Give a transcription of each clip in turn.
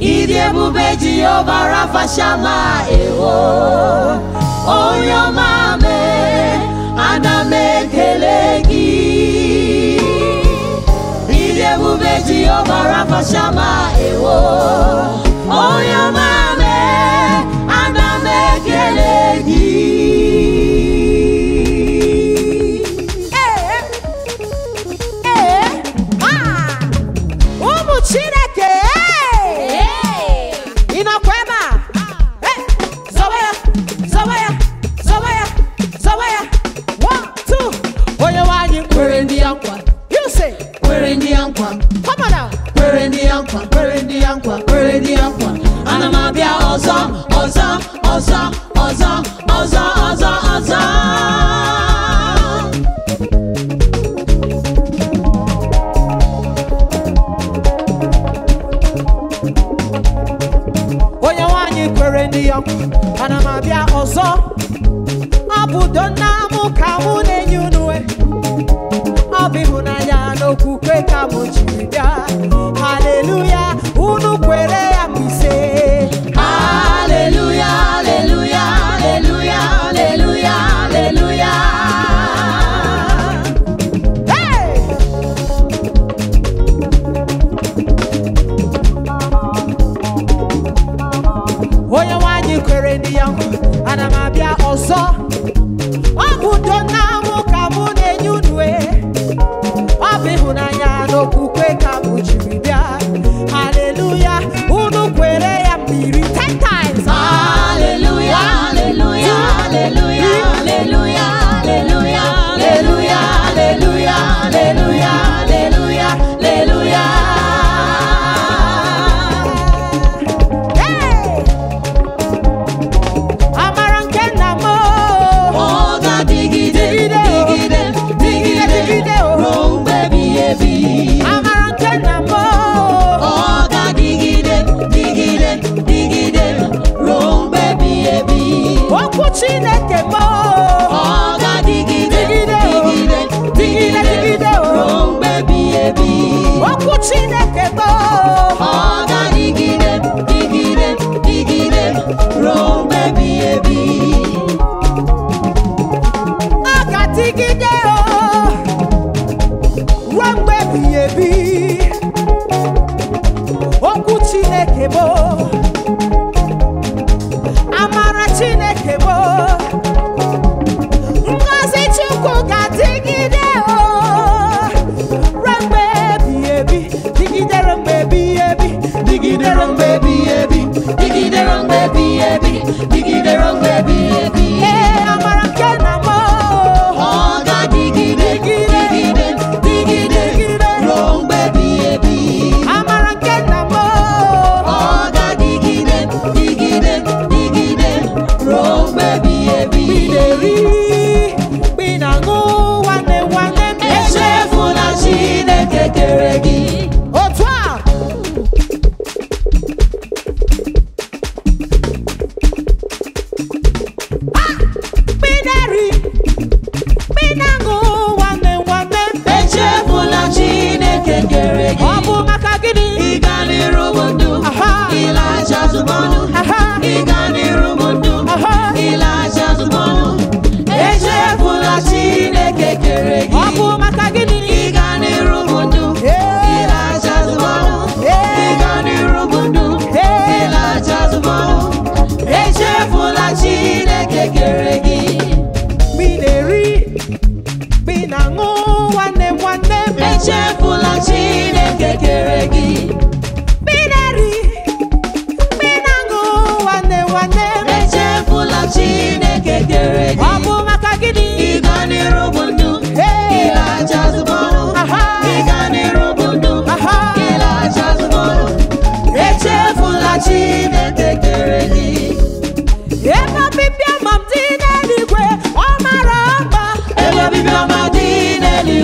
ịdị ebube jehova rafashala ewo onye ọma mee ana gị ịdị ebube jehova ewo onye ọma Hallelujah, ana m abịa ọzọ ọ bụ mụ ka mụ na-enye unu ọ bụ ịhụnanya n'okwukwe ka m jiri bịa haleluya unu kwere ya mgbe ise haleluya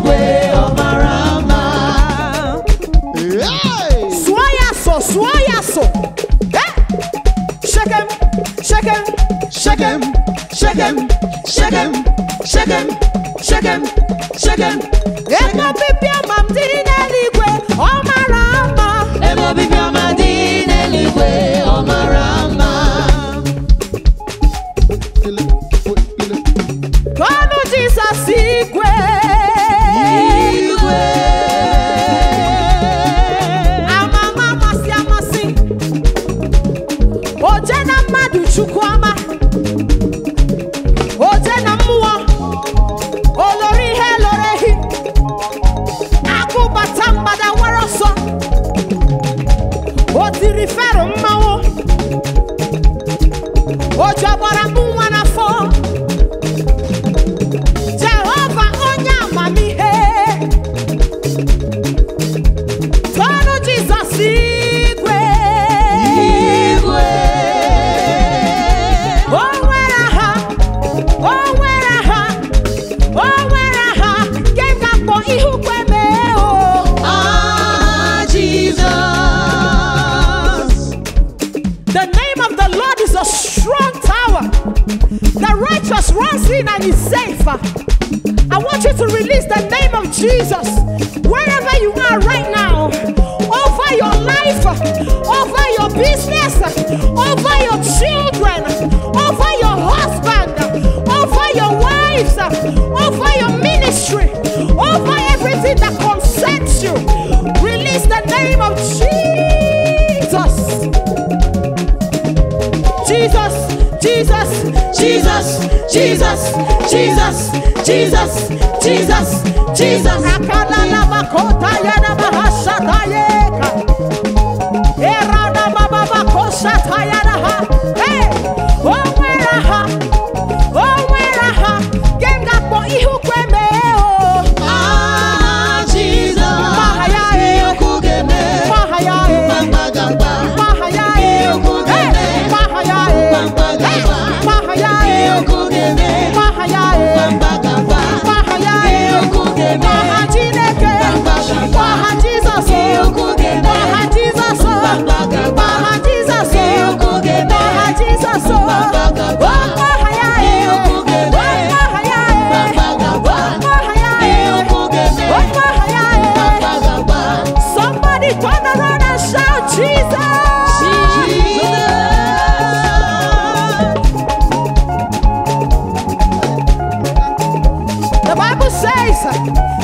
igwe ọmarama. sụọ ya sọ sụọ ya sọ eh? shekem shekem shekem shekem shekem shekem shekem shekem shekem. 19 and is safe. I want you to release the name of Jesus wherever you are right now, over your life, over your business, over your children, over your husband, over your wives, over your ministry, over everything that Jesus, Jesus, Jesus, Jesus, Jesus, Jesus. suck.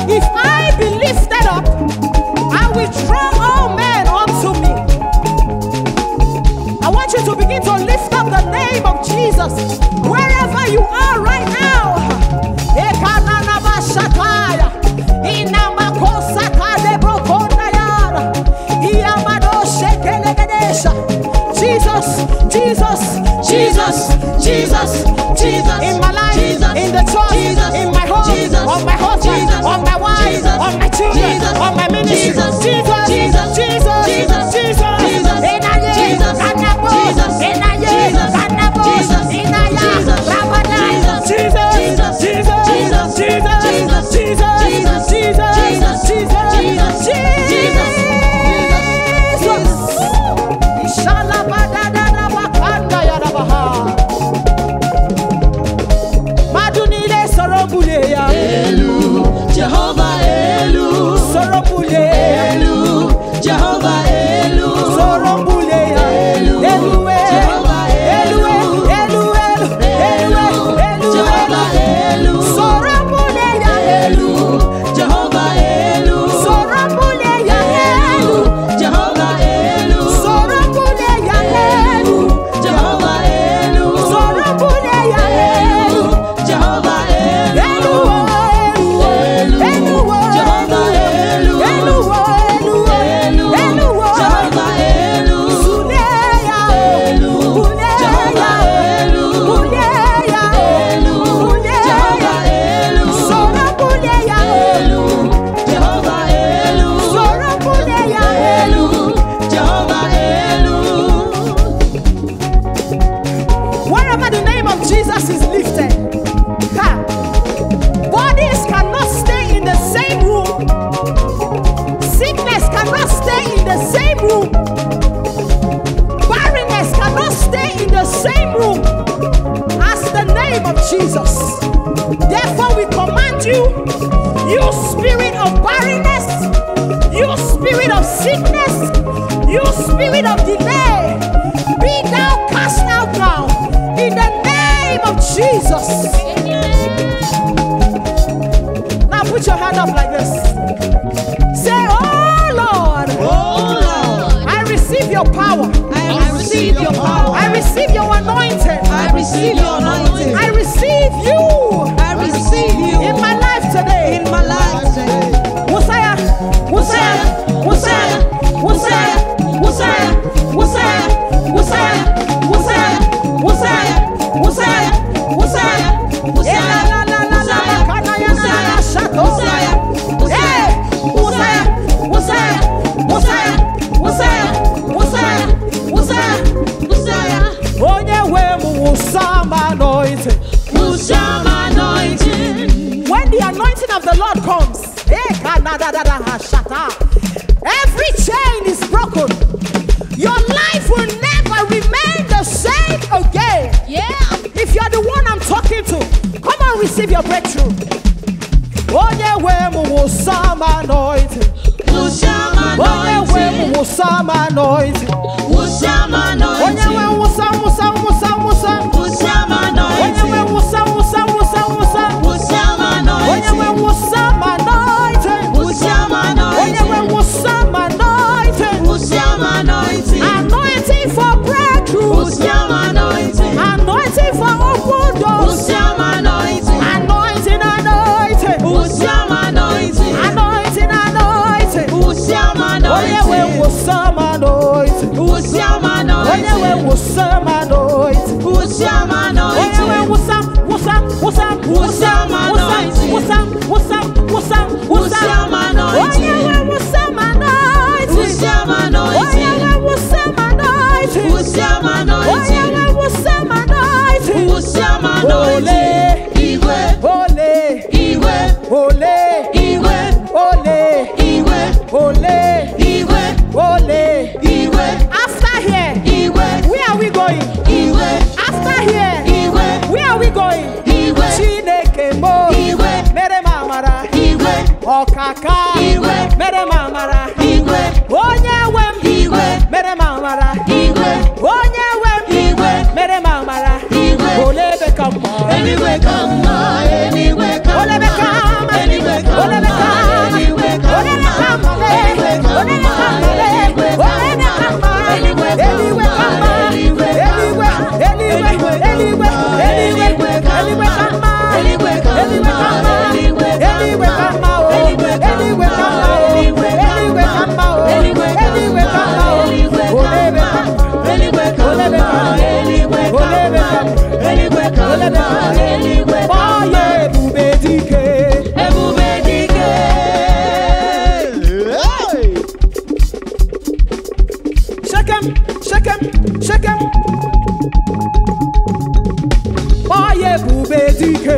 sickness, you spirit of delay, be thou cast out now in the name of Jesus. Now put your hand up like this. Say, Oh Lord, oh Lord, I receive your power. I, receive, receive your power. I receive your anointing. I receive your anointing. I receive you. I receive you. Shata. Every chain is broken. Your life will never remain the same again. Yeah. If you're the one I'm talking to, come and receive your breakthrough. Oh yeah, mu wo some anointing. Onye we mu wo some anointing. ọkaka igwe mere m igwe onye wem igwe mere m igwe onye wem igwe mere m igwe olee ebe ka mma eluigwe dike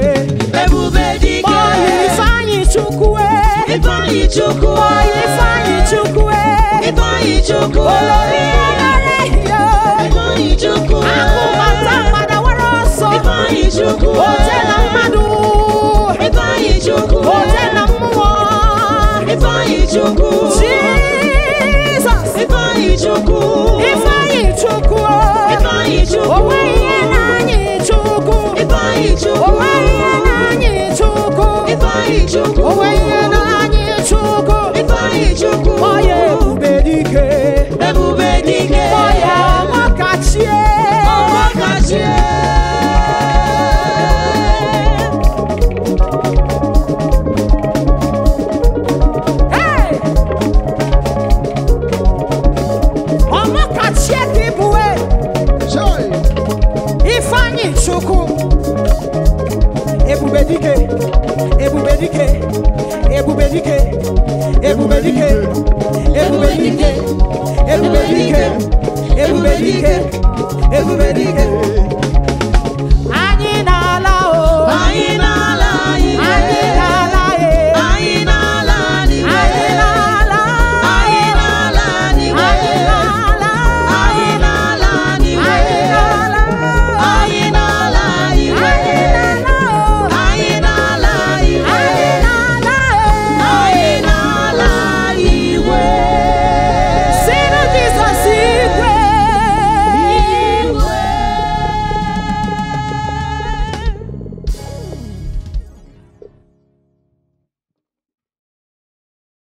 ebube dike ọyị ifeanyị chukwu ifeanyị chukwu ọyị ifeanyị chukwu ifeanyị chukwu olori ọmara ehihie ifeanyị chukwu akụmata mmadụ were ọsọ ifeanyị chukwu ote na mmadụ ifeanyị chukwu ote na mmụọ ifeanyị chukwu jizọs ifeanyị chukwu ifeanyị chukwu Chieki Bue Ifeanyi Chukwu Ebube dike Ebube dike Ebube dike Ebube dike Ebube dike Ebube dike Ebube dike Anyị na-ala o Anyị na